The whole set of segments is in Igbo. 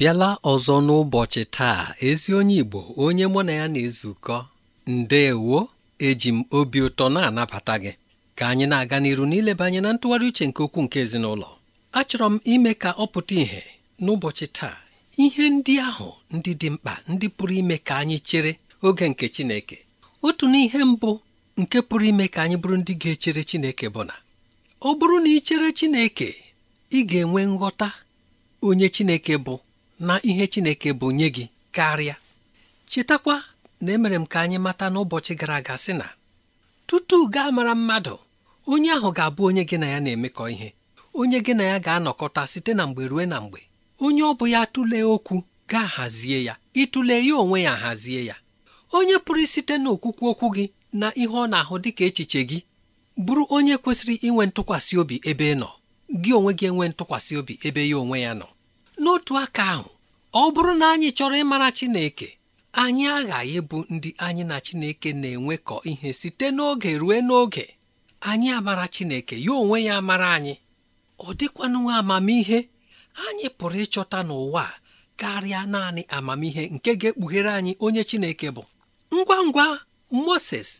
bịala ọzọ n'ụbọchị taa ezi onye Igbo onye mụ na ya na-ezukọ ndeewo eji m obi ụtọ na-anabata gị ka anyị na-aga n'iru n'ileba anyị na ntụgharị uche nke okwu nke ezinụlọ achọrọ m ime ka ọ pụta ìhè n'ụbọchị taa ihe ndị ahụ ndị dị mkpa ndị pụrụ ime ka anyị chere oge nke Chineke otu n'ihe mbụ nke pụrụ ime ka anyị bụrụ ndị ga-echere Chineke bụ na ọ bụrụ na ị chere Chineke ị ga-enwe nghọta onye Chineke bụ na ihe Chineke bụ nye gị karịa chetakwa na emere m ka anyị mata n'ụbọchị gara aga sị na tutu gaa mara mmadụ onye ahụ ga-abụ onye gị na ya na-emekọ ihe onye gị na ya ga-anọkọta site na mgbe ruo na mgbe onye ọ bụ ya tụlee okwu gaa hazie ya ịtụle ya onwe ya hazie ya onye pụrụ site n'okwukwu okwu gị na ihe ọ na-ahụ dịka echiche gị bụrụ onye kwesịrị inwe ntụkwasị obi ebe ị nọ gị onwe gị enwe ntụkwasị obi ebe ya onwe ya nọ n'otu aka ahụ ọ bụrụ na anyị chọrọ ịmara Chineke anyị aghaghị ịbụ ndị anyị na Chineke na-enwekọ ihe site n'oge ruo n'oge anyị amara Chineke ya onwe ya amara anyị ọ dịkwanụ amamihe anyị pụrụ ịchọta n'ụwa karịa naanị amamihe nke ga-ekpughere anyị onye Chineke bụ ngwa ngwa Moses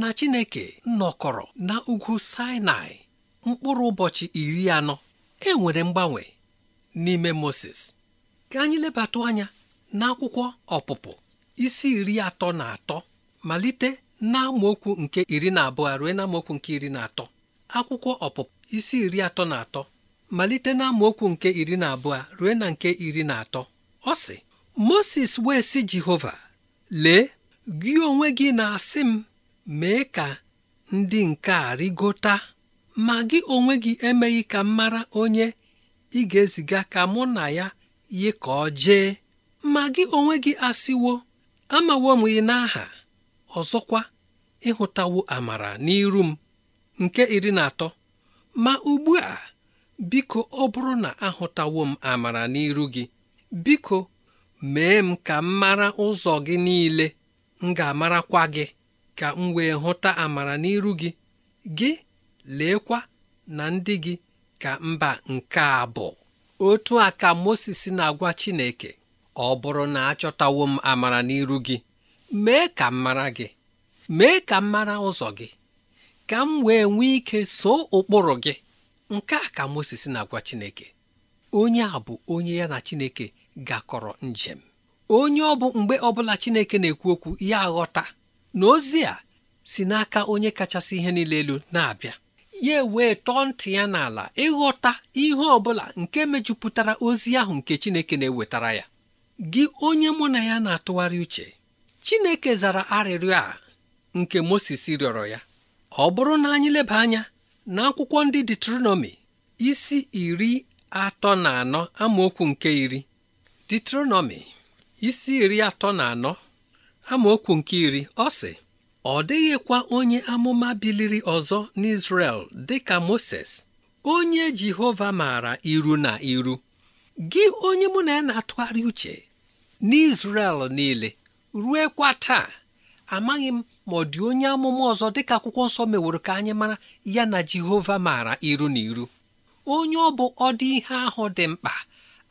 na Chineke nọkọrọ na ugwu Sinai mkpụrụ ụbọchị iri anọ e nwere mgbanwe n'ime moses ka anyị lebata anya n'akwụkwọ ọpụpụ isi iri atọ na atọ malite na nke iri na abụọ rue na nke iri na atọ akwụkwọ ọpụpụ isi iri atọ na atọ malite na amaokwu nke iri na abụọ rue na nke iri na atọ ọ sị moses wee sị jehova lee gị onwe gị na-asị m mee ka ndị nke a rịgota ma gị onwe gị emeghị ka m mara onye ị ga-eziga ka mụ na ya yi ka ọ jee ma gị onwe gị asịwo amawo m gị n'aha ọzọkwa ịhụtawo amara n'iru m nke iri na atọ ma ugbu a biko ọ bụrụ na ahụtawo m amara n'iru gị biko mee m ka m mara ụzọ gị niile m ga-amarakwa gị ka m wee hụta amara n'iru gị gị leekwa na ndị gị ka mba nke a bụ otu a ka Moses na-agwa Chineke ọ bụrụ na achọtawo m amara n'iru gị mee ka m mara gị mee ka m mara ụzọ gị ka m wee nwee ike soo ụkpụrụ gị nke a ka Moses na-agwa Chineke onye a bụ onye ya na Chineke gakọrọ njem onye ọ bụ mgbe ọbụla Chineke na-ekwu okwu ya ghọta na ozi a si n'aka onye kachasị ihe niile elu na-abịa ya wee tọọ ntị ya n'ala ịghọta ihe ọbụla nke mejupụtara ozi ahụ nke Chineke na-ewetara ya gị onye mụ na ya na-atụgharị uche Chineke zara arịrịọ a nke Moses rịọrọ ya ọ bụrụ na anyị leba anya na akwụkwọ ndị Deuteronomy isi iri atọ na anọ amaokwu nke iri Deuteronomy isi iri atọ na anọ amaokwu nke iri ọ sị ọ dịghịkwa onye amụma biliri ọzọ n'Izrel dịka Moses onye Jehova maara iru na iru gị onye mụ na ya na-atụgharị uche n'Izrel niile ruekwa taa amaghị m ma ọ dị onye amụma ọzọ dịka akwụkwọ nsọ meworo ka anyị mara ya na Jehova maara iru na iru onye ọ bụ ọdị ihe ahụ dị mkpa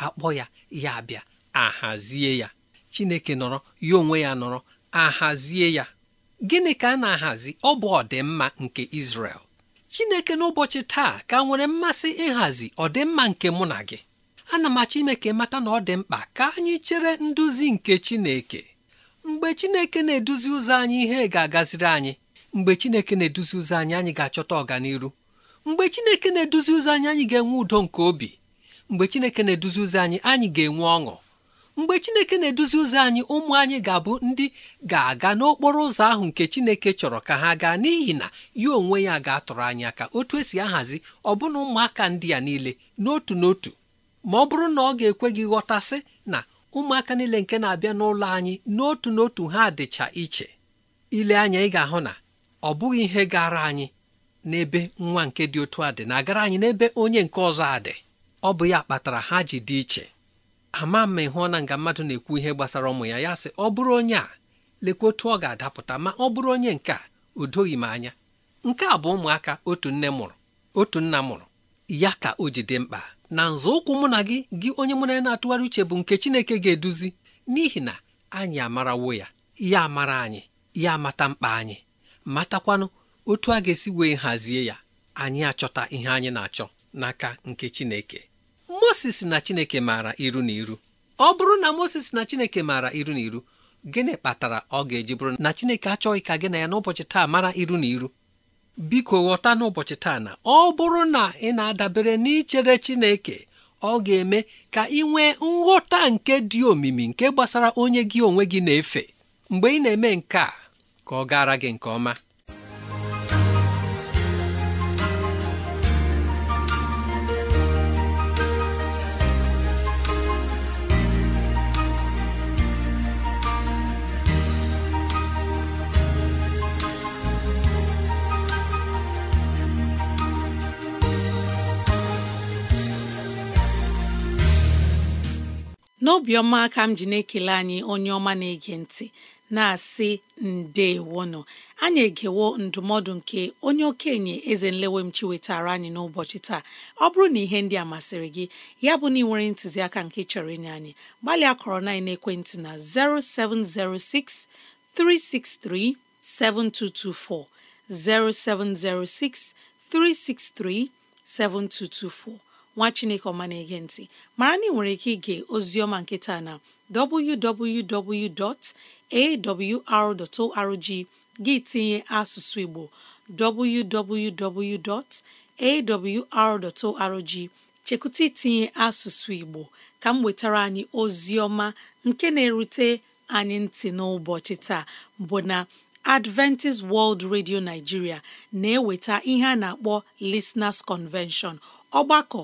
akpọ ya ya bịa ahazie ya Chineke nọrọ ya onwe ya nọrọ ahazie ya gịnị ka a na-ahazi ọ bụ ọdịmma nke Izrel Chineke n'ụbọchị taa ka nwere mmasị ịhazi ọdịmma nke mụ na gị ana m achọ ime ka mata na ọ dị mkpa ka anyị chere nduzi nke Chineke mgbe Chineke na-eduzi ụzọ anyị ihe ga-agaziri anyị mgbe Chineke na-eduzi ụzọ anyị anyị ga-achọta ọganiru mgbe Chineke na-eduzi ụzọ anyị anyị ga-enwe udo nke obi mgbe Chineke na-eduzi ụzọ anyị anyị ga-enwe ọṅụ mgbe chineke na-eduzi ụzọ anyị ụmụ anyị ga-abụ ndị ga-aga n'okporo ụzọ ahụ nke chineke chọrọ ka ha gaa n'ihi na ya onwe ya ga-atụrụ anyị aka otu esi ahazi ọ bụna ụmụaka ndị a niile n'otu n'otu ma ọ bụrụ na ọ ga-ekwe gị ghọtasị na ụmụaka niile nke na-abịa n'ụlọ anyị n'otu n'otu ha dịcha iche ile anya ị ga-ahụ na ọ bụghị ihe gara anyị n'ebe nwa nke dị otu a dị na-agara anyị n'ebe onye nke ọzọ a dị ọ bụ ya kpatara ha ji dị iche ama ma ịhụ na nga mmadụ na-ekwu ihe gbasara ụmụ ya ya sị ọ bụrụ onye a lekwa otu ọ ga-adapụta ma ọ bụrụ onye nke a o doghị m anya nke a bụ ụmụaka otu nne mụrụ otu nna mụrụ ya ka o ji dị mkpa na nzọụkwụ mụ na gị gị onye mụ na ya na-atụgharị uche bụ nke Chineke ga-eduzi n'ihi na anyị amarawo ya ya amara anyị ya amata mkpa anyị matakwanụ otu a ga-esi wee hazie ya anyị achọta ihe anyị na-achọ n'aka nke Chineke Moses na Chineke maara iru na iru ọ bụrụ na Moses na Chineke maara iru na iru gịnị kpatara ọ ga-eji bụrụ na Chineke achọghị ka gị na ya n'ụbọchị taa mara iru na iru biko ghọta n'ụbọchị taa na ọ bụrụ na ị na-adabere n'ichere Chineke ọ ga-eme ka ị nwee nghọta nke dị omimi nke gbasara onye gị onwe gị na-efe mgbe ị na-eme nke a ka ọ gara gị nke ọma n'obiọma aka m ji na-ekele anyị onye ọma na-ege ntị na-asị ndeewono anyị egewo ndụmọdụ nke onye okenye eze nlewemchi wetara anyị n'ụbọchị taa ọ bụrụ na ihe ndị a masịrị gị ya bụ na ị nwere ntụziaka nke chọrọ inye anyị gbalịa kọrọ na ekwentị na 0706 363 7224 0706 363 7224 nwa chineke ọma na-ege ntị mara na ị nwere ike ige oziọma nkịta na www.awr.org gị tinye asụsụ igbo www.awr.org chekwụta itinye asụsụ igbo ka m wetara anyị oziọma nke na-erute anyị ntị n'ụbọchị taa bụ na Adventist World Radio Nigeria na-eweta ihe a na-akpọ Listeners Convention ọgbakọ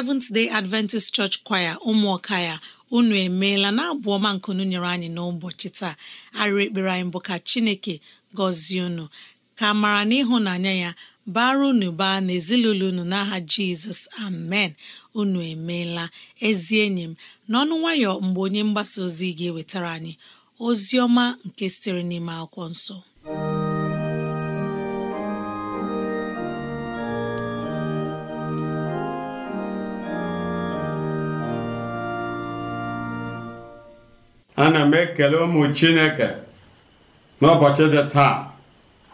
Seventh Day Adventist Church Choir ụmụọka ya unu emeela na abụ ọma nkunu nyere anyị n'ụbọchị taa arịrị ekpere anyị bụ ka Chineke gọzie unu ka mara n'ịhụnanya ya bara unu baa n'ezinụlọ unu n'aha Jizọs amen unu emeela ezi enyi m n'ọnụ nwayọ mgbe onye mgbasa ozi ga-ewetara anyị ozi ọma nke sitere n'ime akwụkwọ nsọ ana m ekele ụmụ chineke n'ụbọchị dị taa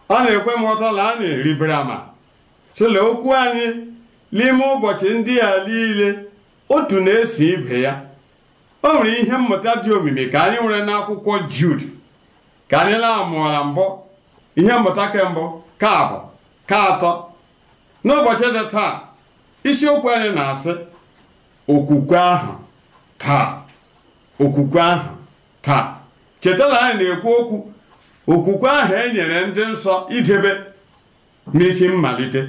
ọ na-ekwe m ụtọ na a na-eribere ama sịla okwu anyị n'ime ụbọchị ndị a niile otu na-eso ibe ya o nwere ihe mmụta dị omimi ka anyị nwere n'akwụkwọ Jud ka anyị na-amụọla mbụ ihe mmụta kembụ ka ka atọ n'ụbọchị dị taa isiokwu anyị na-asị okwukwe ahụ taa okwukwe ahụ taa cheta na anyị na-ekwu okwu okwukwe ahụ e nyere ndị nsọ idebe n'isi mmalite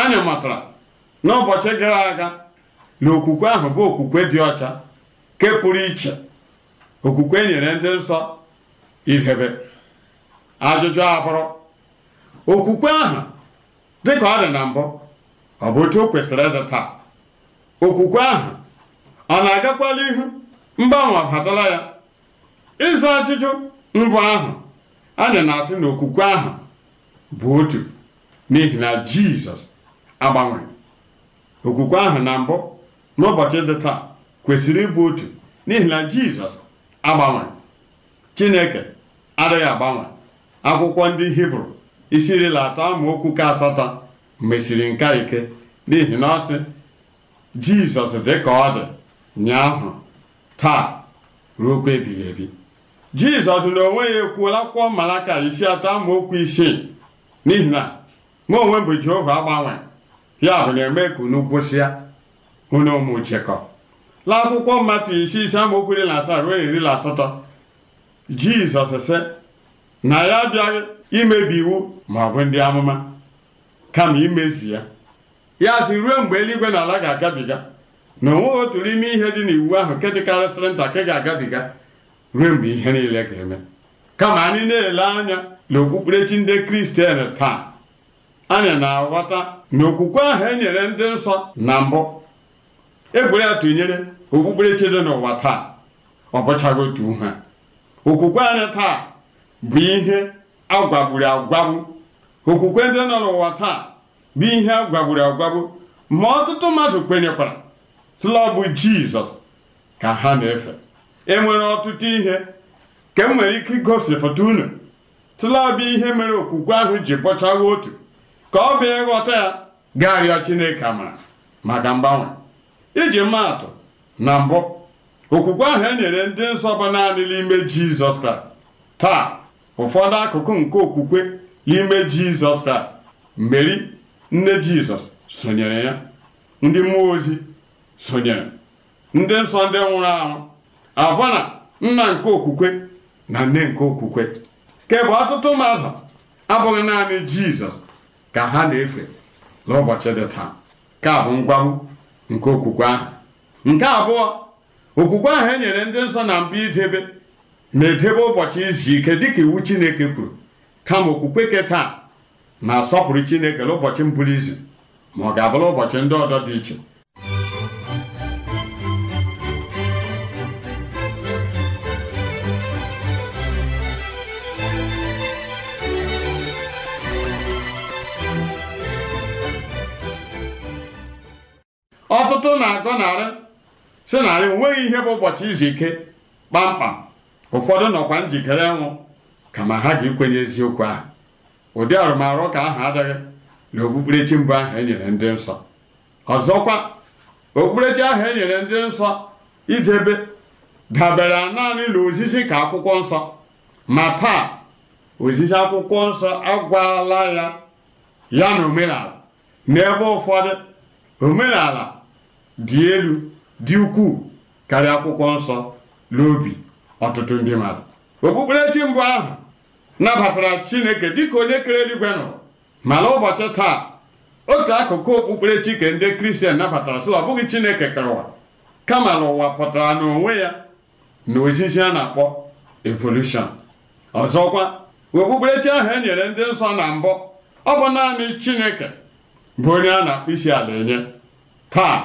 anya matara n'ụbọchị gara aga na okwukwe ahụ bụ okwukwe dị ọcha ke pụrụ iche okwukwe e nyere ndị nsọ idebe ajụjụ abụrụ okwukwe ahụ ka ọ dị na mbụ ọ bụ otu o kwesịrị ịdị taa okwukwe ahụ ọ na-agakwala ihu mgbanwe batara ya ịza ajụjụ mbụ ahụ anyị na-asị na okwukwe ahụ bụ otu n'ihi na jizọs agbanwe okwukwe ahụ na mbụ n'ụbọchị dị taa kwesịrị ịbụ otu n'ihi na jizọs agbanwe chineke adịghị agbanwe akwụkwọ ndị hibru isi irila atọ amaokwu ka asatọ mesiri nka ike n'ihi na ọ sị jizọs dị ka ọ dị nyaahụ taa ruo okwu ebighị ebi jizọs na onwe ya ekwuola akwụkwọ malaka isi atọ amaokwu isii n'ihi na mụ onwe m bụ jehova agbanwe ya bụ na-eme ka unu gwụsịa unu ụmụ chekọ la akwụkwọ mmatụ isi ise amaokwu iri na asaa ruo iri na asatọ jizọs sị na ya abịaghị imebi iwu ma ọ bụ ndị amụma kama imezi ya ya sị ruo mgbe eluigwe na ala ga-agabiga na onweghị otu n'ime ihe dị n'iwu ahụ nke dịkarịsịrị nta ka ga-agabiga ruo mgbe ihe niile ga-eme kama anyị na-ele anya na okpukperechi ndị kristian taa anyị na-aghọta na okwukwe ahụ enyere ndị nsọ na mbụ ekwere ya tụnyere okpukperechi dị n'ụwa taa ọ bụchaghị otu ha okwukwe anyị taa bụ ihe agwagburu agwagbu okwukwe ndị nọ n'ụwa taa bụ ihe agwagburu agwagbu ma ọtụtụ mmadụ kwenyekwara tụlọbụ jizọs ka ha na-efe e nwere ọtụtụ ihe ka m e nwere ike igosi foto unu tụlabịa ihe mere okwukwe ahụ ji bọchagha otu ka ọ bịa ịghọta ya ga-arịọ Chineke amara maka mgbanwe iji maatụ na mbụ okwukwe ahụ e nyere ndị nsọ bụ naanị n'ime Jizọs Kraịst taa ụfọdụ akụkụ nke okwukwe n'ime Jizọs Kraịst Meri nne Jizọs sonyere ya ndị mmụọ ozi sonyere ndị nsọ ndị nwụrụ anwụ abụ na nna nke okwukwe na nne nke okwukwe kebụ ọtụtụ mmadụ abụghị naanị jizọs ka ha na-efe n'ụbọchị dị taa nke bụ ngwahụ nke okwukwe ahụ nke abụọ okwukwe ahụ e nyere ndị nsọ na mba idebe na-edebe ụbọchị izu ike dịka iwu chineke kwuru kama okwukwe ke taa na-asọpụrụ chineke n'ụbọchị mbụrụ izu ma ọ ga-abụrụ ụbọchị ndị ọdọ dị iche ntụ na-agọ narị si narị onweghị ihe bụ ụbọchị izu ike kpamkpam ụfọdụ nọkwa njikere ka kama ha ga-ekwenye eziokwu ahụ ụdị arụmarụ ka ahụ adịghị na okpukperechi mbụ ahụ enyere ndị nsọ ọzọkwa okpukperechi ahụ enyere ndị nsọ idebe dabere naanị na ozizi ka akwụkwọ nsọ ma taa ozizi akwụkwọ nsọ agwala ya ya na omenala n'ebe ụfọdụ omenala dị elu dị ukwuu karịa akwụkwọ nsọ n'obi ọtụtụ ndị mmadụ okpukperechi mbụ ahụ nabatara chineke dịka onye kere eluigwe nọ mana ụbọchị taa otu akụkụ okpukperechi ke ndị kristian nabatara sịla ọ bụghị chineke kere ụwa kama na ụwa pụtara n'onwe ya na ozizi a na-akpọ evolushọn ọzọkwa okpukperechi ahụ e nyere ndị nsọ na mbụ ọ bụ naanị chineke bụ onye a na-akpụ isi ala enye taa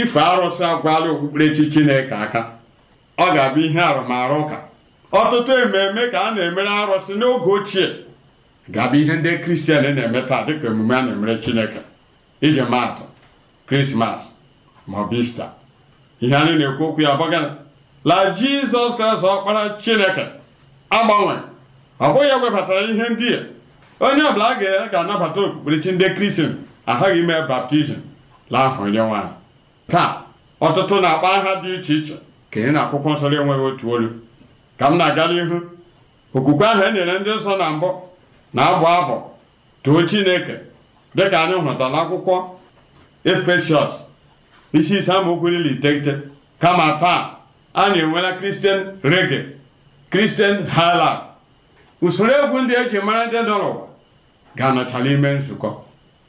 ife arụsị agwala okpukperechi chineke aka ọ ga-abụ ihe arụmarụ ụka ọtụtụ ememe ka a na-emere arụsị n'oge ochie ga-abụ ihe ndị kristian na-eme taa dịka emume a na-emere chineke iji maatụ krismas ma ista ihe anyị na-ekwu okwu ya gbagara la jizọs kraịst ọkpara chineke agbanwe ọ bụghị ya webatara ihe ndị a onye ọbụla a ga-anabata okpukperechi ndị kristian aghaghị ime baptizim la ahụ onye nwaanyị taa ọtụtụ na-akpọ aha dị iche iche ka ị na akwụkwọ nsọ enweghị otu olu ka m na-aga n'ihu okwukwe ahụ e nyere ndị nsọ na mbụ na-abụ abụ too chineke dịka anyị hụta n'akwụkwọ efesiọs isi ise amaokwu iri iteghete kama taa anyị enwela kristian rege kristian hailaf usoro egwu ndị eji mara ndị nọ n'ụwa ga-anọchala ime nzukọ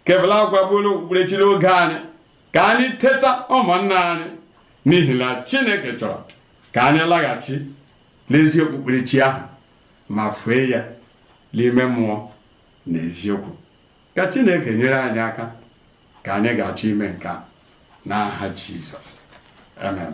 kebụla agwagbuola okpukperechiri oge anyị ka anyị teta ụmụnna anyị n'ihi na chineke chọrọ ka anyị laghachi n'ezi okpukperechi ahụ ma fue ya n'ime mmụọ na eziokwu ka chineke nyere anyị aka ka anyị ga-achọ ime nke n'aha jizọs amen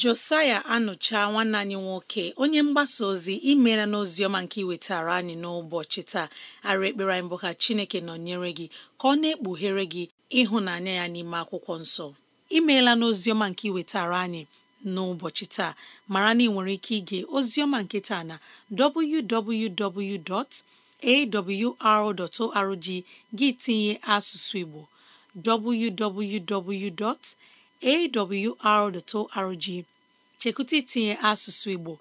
josaya anụcha nwanne anyị nwoke onye mgbasa ozi imela n'oziọma nke iwetara anyị n'ụbọchị taa ara ekpere anyị bụ ka chineke nọnyere gị ka ọ na-ekpughere gị ịhụnanya ya n'ime akwụkwọ nsọ imeela n'oziọma nke iwetara anyị n'ụbọchị taa mara na ị nwere ike ige oziọma nke taa na www.awr.org gị tinye asụsụ igbo www. awr.org chekwụta itinye asụsụ Igbo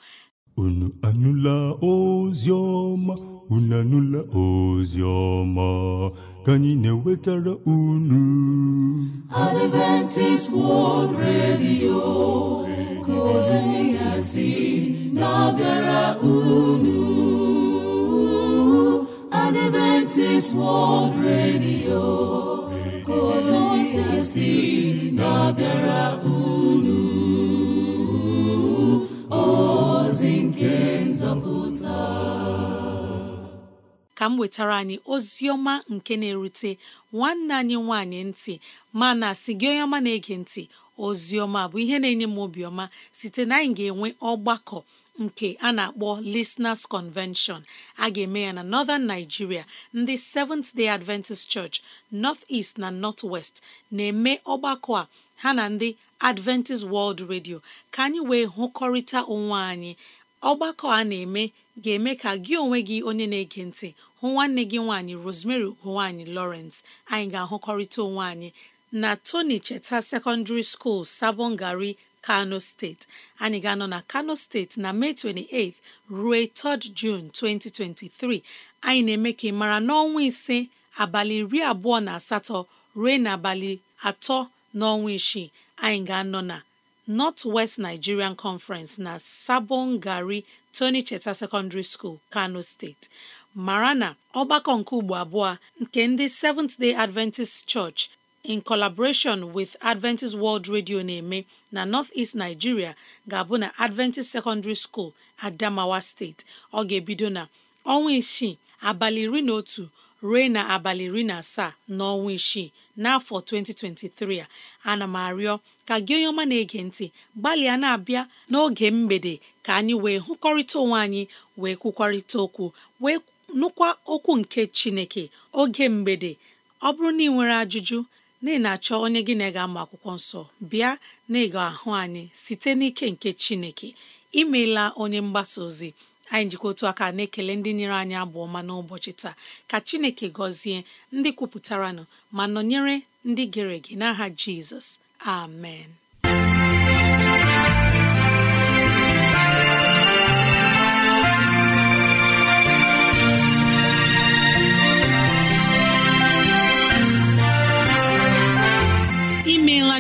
unu anụla ozi ọma unu anụla ozi ọma ka anyị na-ewetara unu Adventist World Radio ka ozi na-abịara unu Adventist World Radio ka si na-abịara unu ozi nke nzọpụta ka m wetara anyị ozi ọma nke na-erute nwanne anyị nwanyị ntị mana si gị onye ọma na-ege ntị Ozioma bụ ihe na-enye m obiọma site na anyị ga-enwe ọgbakọ nke a na-akpọ Listeners Convention a ga-eme ya na Northern Nigeria ndị Seventh Day Adventist Church North East na North West na-eme ọgbakọ a ha na ndị Adventist World Radio ka anyị wee hụkọrịta onwe anyị ọgbakọ a na-eme ga-eme ka gị onwe gị onye na-ege ntị hụ nwanne gị nwaanyị Rosemary ugo Lawrence anyị ga-ahụkọrịta onwe anyị na Tony Cheta Secondary School Sabongari Kano steeti anyị ga-anọ na Kano steeti na Mee 28 ruo 3 rd June 2023 anyị na-eme ka ị mara n'ọnwa ise abalị iri abụọ na asatọ ruo n'abalị atọ n'ọnwa isii anyị ga-anọ na North West Nigerian Conference na Sabongari Tony Cheta Secondary School Kano steeti mara na ọgbakọ nke ugbo abụọ nke ndị Seventh Day Adventist Church in collaboration with Adventist World Radio na-eme na North-East Nigeria ga-abụ na Adventist Secondary School Adamawa State ọ ga-ebido na ọnwa isii abalị iri na otu ruo na abalị iri na asaa n'ọnwa isii n'afọ 2023 a ana m arịọ ka gị onye ọma na-ege ntị gbalịa na-abịa n'oge mgbede ka anyị wee hụkọrịta onwe anyị wee kwukwarịta okwu wee nụkwa okwu nke Chineke oge mgbede ọ bụrụ na ị nwere ajụjụ na ị na-achọ onye gị na ị ga-amụ akwụkwọ nsọ bịa na ị ahụ anyị site n'ike nke Chineke imeela onye mgbasa ozi anyị njikọ otu aka na-ekele ndị nyere anyị abụ ọma n'ụbọchị taa ka Chineke gọzie ndị kwupụtara kwupụtaranụ ma nọnyere ndị gere ege n'aha Jizọs amen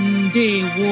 ndewo